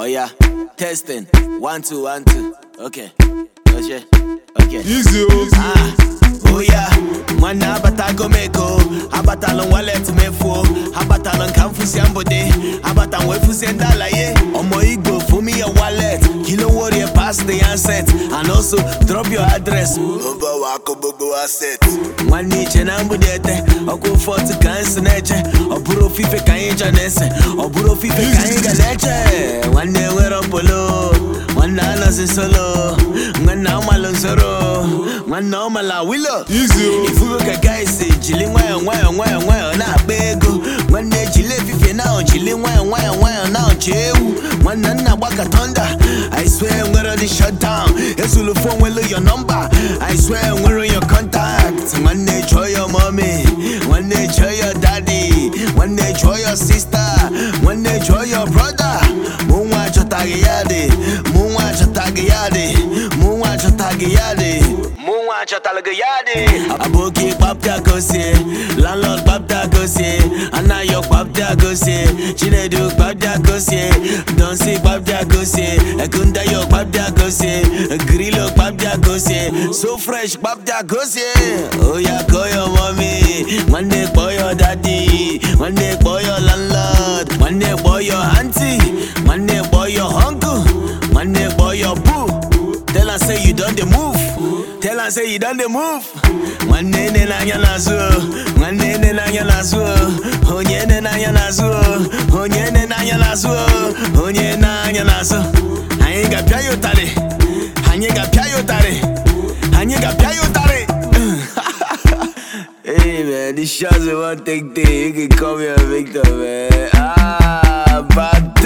Oh yeah, testing. One two one two. Okay. Okay. Okay. Easy. Ah. Oh yeah. Nwanne abatago m ego abatalụ m walet m efuo abatalụ nka m fụsie abata m wee fụsie ndị alaye ọmọ igbo fumi your wallet kilo warrior pass the handset and also drop your address. Gbogbo wa kó gbogbo wa set. Nwanne iche na mgbidi ete ọkụ fọtụ ka nsị na-eche ọ bụrụ ofufe ka anyị chọ na-ese ọ ofufe ka anyị ga na-eche solo nwanna ọmala nsoro nwanna ọmala wilo ifuru ka gaisi jili nwayọ nwayọ nwayọ nwayọ na-akpa ego nwanne jili efife na jili nwayọ nwayọ nwayọ na-ọchị ewu nwanna nna gbaka tonda I nwere dị shutdown ezulu nwelu nwere nwanne chọọ nwanne ya dị chọtalụ gị ya dị aboki kpapta gosi landlord kpapta gosi anayo kpapta gosi chinedu kpapta gosi donsi kpapta gosi ekundayo kpapta gosi grilo kpapta gosi so fresh kpapta gosi oya kọyọ mọmi nwanne kpọyọ dadi nwanne kpọyọ landlord nwanne kpọyọ aunty nwanne kpọyọ uncle nwanne kpọyọ boo tell am say you don dey move Tell her say you done the move. Nwanne nne na na nwanne na na onye nne na anya na-azụ onye na na anyị ga-apịa ya ụtarị anyị ga-apịa ya ụtarị ga Hey man, this take day. You can a victim, ah,